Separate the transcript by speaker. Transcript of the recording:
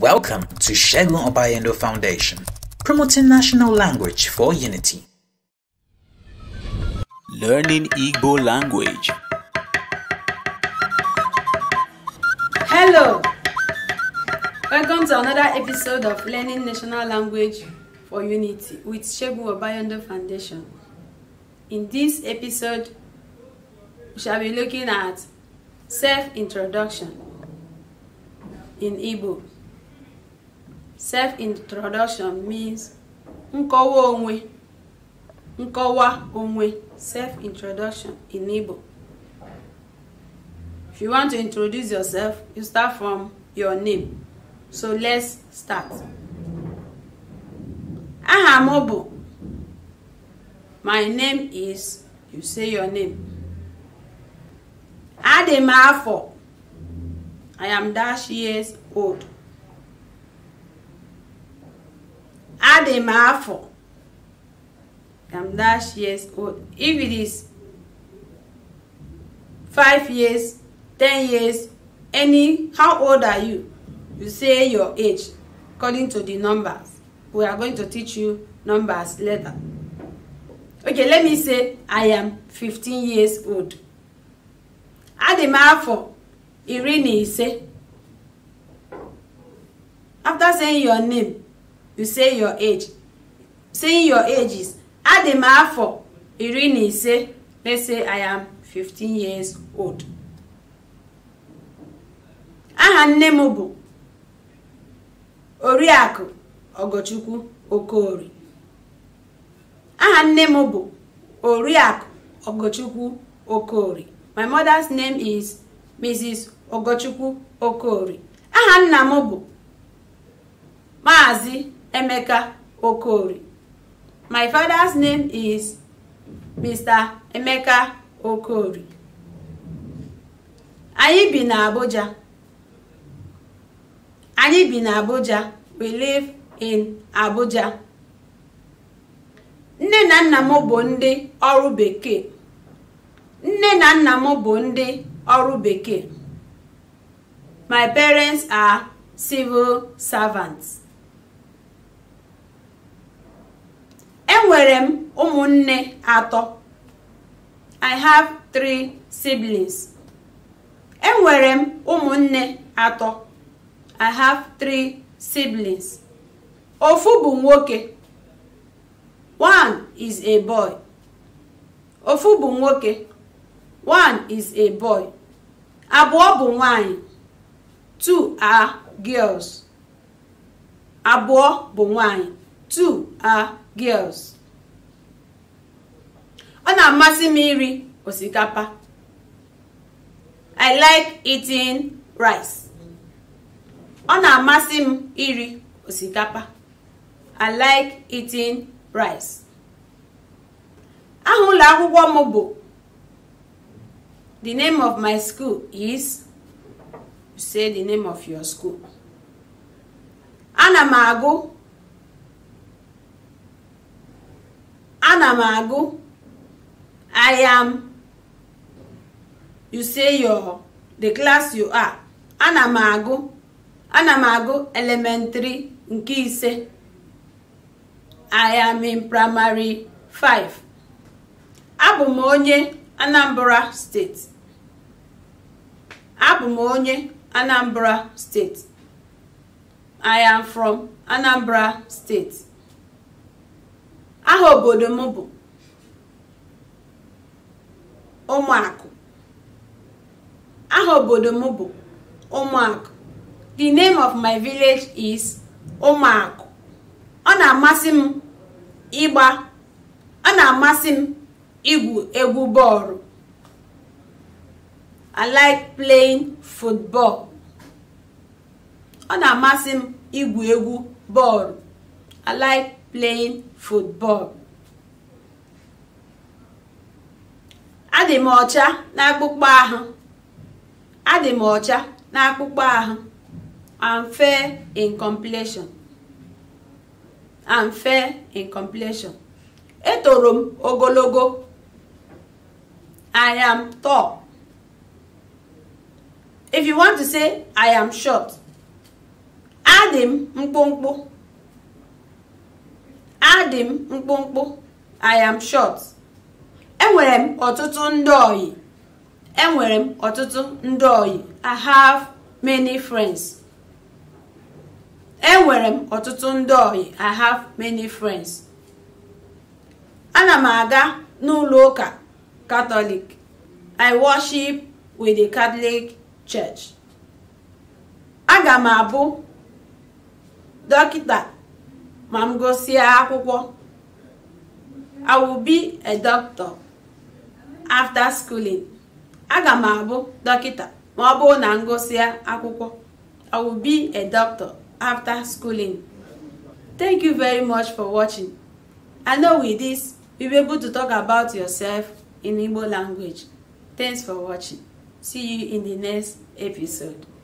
Speaker 1: Welcome to Shegun Obayendo Foundation, promoting national language for unity. Learning Igbo language. Hello! Welcome to another episode of Learning National Language for Unity with Shegun Obayendo Foundation. In this episode, we shall be looking at self-introduction in Igbo. self-introduction means nkọwa onwe nkọwa onwe self-introduction in Igbo if you want to introduce yourself you start from your name so let's start aha m bụ my name is you say your name adị m afọ I am dash years old adị m afọ I'm dash years old. If it is five years, ten years, any, how old are you? You say your age according to the numbers. We are going to teach you numbers later. Okay, let me say I am 15 years old. Adị m afọ iri na ise. After saying your name, you say your age saying your age is adị m afọ iri na ise let's say i am 15 years old aha nne m bụ oriakụ ogochukwu Okori. aha nne m bụ oriakụ ogochukwu Okori. my mother's name is mrs ogochukwu Okori. aha nna m bụ maazị Emeka Okori. My father's name is Mr. Emeka Okori. Anyị bi na Abuja. Anyị bi na Abuja. We live in Abuja. Nne na nna m bụ ndị ọrụ bekee. Nne na nna m bụ ndị ọrụ bekee. My parents are civil servants. enwere m ụmụnne atọ i have three siblings enwere m ụmụnne atọ i have three siblings ofu bụ nwoke one is a boy ofu bụ nwoke one is a boy abụọ bụ nwanyị two are girls abụọ bụ nwanyị two are girls ọ na-amasị m iri osikapa i like eating rice ọ na-amasị m iri osikapa i like eating rice aha ụlọ akwụkwọ m bụ the name of my school is say the name of your school ana m agụ ana m agụ I am you say your the class you are ana m agụ ana m agụ elementary nke ise I am in primary 5 abụ m onye Anambra steeti abụ m onye Anambra steeti I am from Anambra steeti aha obodo m bụ ụmụakụ m bụ ụmụakụ the name of my village is ụmụakụ ọ na-amasị m ịgba ọ na-amasị m igwu egwu bọọlụ playing football adị m ọcha n'akpụkpọ ahụ adị m ọcha n'akpụkpọ ahụ I'm fair in completion I'm fair in completion etoro m ogologo I am tall if you want to say I am short adị m mkpụmkpụ adị m mkpụmkpụ i am short enwere m ọtụtụ ndị ọyị enwere m ọtụtụ ndị ọyị i have many friends enwere m ọtụtụ ndị ọyị i have many friends ana m aga n'ụlọ ụka katọlik i worship with the catholic church aga m abụ dọkịta ma m akwụkwọ I will be a doctor after schooling aga m abụ dọkịta ma ọ bụrụ na m akwụkwọ I will be a doctor after schooling. Thank you very much for watching. I know with this, you be able to talk about yourself in Igbo language. Thanks for watching. See you in the next episode.